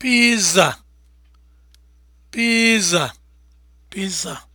Pizza, pizza, pizza.